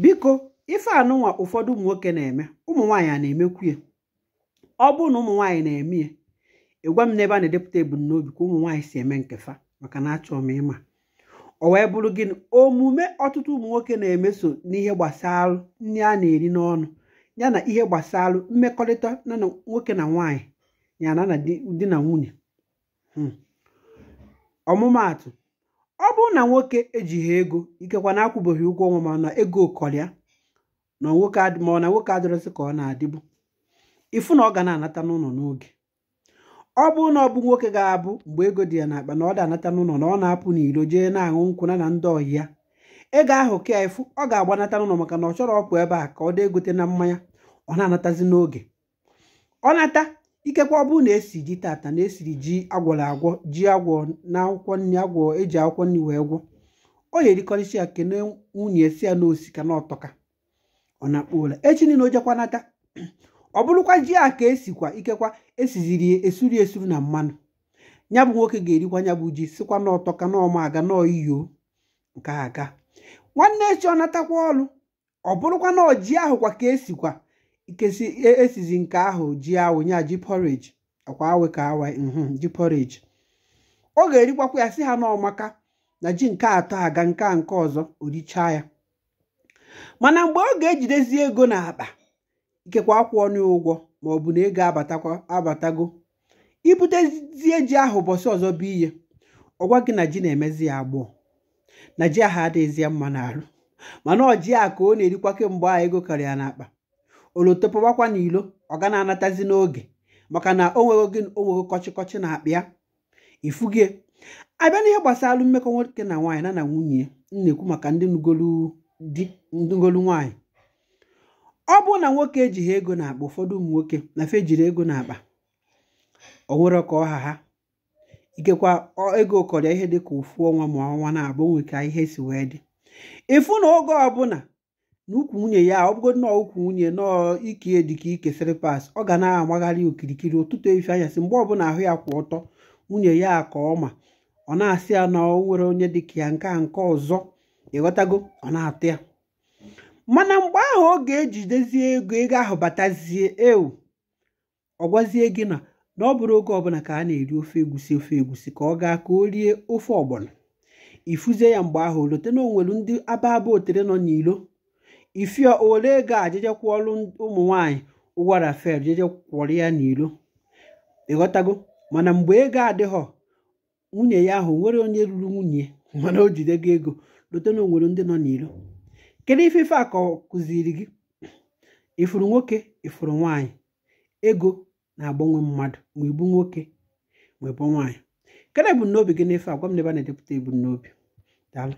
biko ife anụnwa ụfọdụ ụmụ nwoke na-eme ụmụ a na-emekwuye ọ bụrụ na ụmụ nwaanyị na-eme ya ịgwa m n'ebe a na-edepụta ebumnobi ka ụmụ si eme nkefa maka na achọọ m ịma ọ wee bụrụ gịnị omume ọtụtụ ụmụ nwoke na-emeso n'ihe gbasara nri a na-eri n'ọnụ ya na ihe gbasalụ mmekọrịta na nwoke na nwaanyị ya na na di na nwunye hmm. ọmụmaatụ ọ bụrụ na nwoke ejighị ego ikekwa na akwụbeghị ụgwọ ọnwa mana ego kọrịa na nwoke ma na nwoke adịrịsị ka ọ na-adịbu ịfụ na ọ ga na-anata n'ụlọ n'oge ọ bụrụ na ọ bụ nwoke ga-abụ mgbe ego dị ya n'akpa na ọ da-anata n'ụlọ na ọ na-apụ n'iro jee na-aṅụ nkwụ na ndị ọyị ya ego ahụ ka ịfụ ọ ga-agbanata n'ụlọ maka na ọ chọrọ ọpụ ebe a ka ọ dị egote na mmanya ọ na-anatazi n'oge ọ nata Ikekwa ọ bụrụ na esi ji tata na esiri ji agwọrọ agwọ ji agwọ na akwụkwọ nri agwọ eji akwụkwọ nri wee gwọ ọ ga-erikọrịcha ya kene nwunye si ya na osika na ọtọka ọ na-akpọ ụla echi niile o jekwa nata ọ bụrụkwa ji a ka esikwa ikekwa esiziri esuri esuru na mmanụ ya bụ nwoke ga-erikwa ya bụ ji sikwa na ọtọka na ọma aga na ọiyo nke aga nwanne echi ọ natakwa ọlụ ọ bụrụkwa na ji ahụkwa ka esikwa kesi esizi e nke ahụ ji awụ ji porridge akwa ka awa mhm, ji porridge ọ ga-erikwakwa ya si ha n'ọmaka na ji nke atọ aga nke a nke ọzọ orichaa ya mana mgbe ọ ga-ejidezi ego n'akpa ikekwa akwụ ọnụ ụgwọ ma ọ bụ na ego abatakwa abatago ibutezie ji ahụ ụbọchị ọzọ bụ ihe ọgwa gị na ji na-emezi ya na ji ahụ adịghịzi mma n'arụ mana ọji a ka ọ na-erikwa kemgbe a ego karịa n'akpa oloto n'ilo ọ ga na-anatazi n'oge maka na o nwere gị o nwere kọchịkọchị na akpịa ifugie abịa n'ihe gbasara mmekọ nwoke na nwaanyị na na nwunye na-ekwu maka ndị ngolu di ndị nwaanyị ọ bụrụ na nwoke ejighị ego na-akpa ụfọdụ ụmụ nwoke na fe ejiri ego na-akpa o nwere ka ọha ha ikekwa ego kọrịa ihe dị ka ụfụ ọnwa ma ọnwa na-abụ nwoke ihe si wee dị ịfụ na oge ọbụla na ukwu nwunye ya ọ bụgo nnọọ ukwu nwunye nọọ ikie dịka ike pas ọ ga na-amagharị okirikiri ụtụtụ efi si mgbe ọbụla ahụ ya kwụ ọtọ nwunye ya ka ọ ma ọ na-asị ya na o nwere onye dịka ya nke a nke ọzọ ịghọtago ọ na-atụ ya mana mgbe ahụ ọ ga-ejidezie ego ego ahụ batazie ewu ọ gwazie gị na na ọ bụrụ oge ọbụla ka a na-eri ofe egusi ofe egusi ka ọ gaa ka o rie ofe ọgbọnọ ifuzie ya mgbe ahụ o lote na o ndị aba aba otere nọ n'ilo ifia ole ego a jeje kwụọlụ ụmụ nwanyị ụgwara fel jeje kwụrụ ya n'ilo ịghọtago mana mgbe ego adịghọ nwunye ya ahụ nwere onye ruru nwunye mana o jidego ego lote na onwere ndị nọ n'ilo kedu ife ife a kụziri gị ifuru nwoke ifuru nwanyị ego na-agbanwe mmadụ ma ibu nwoke ma ibu nwaanyị kedu ebumnobi gị n'ife a gwa m n'ebe a na-edepụta ebumnobi daalụ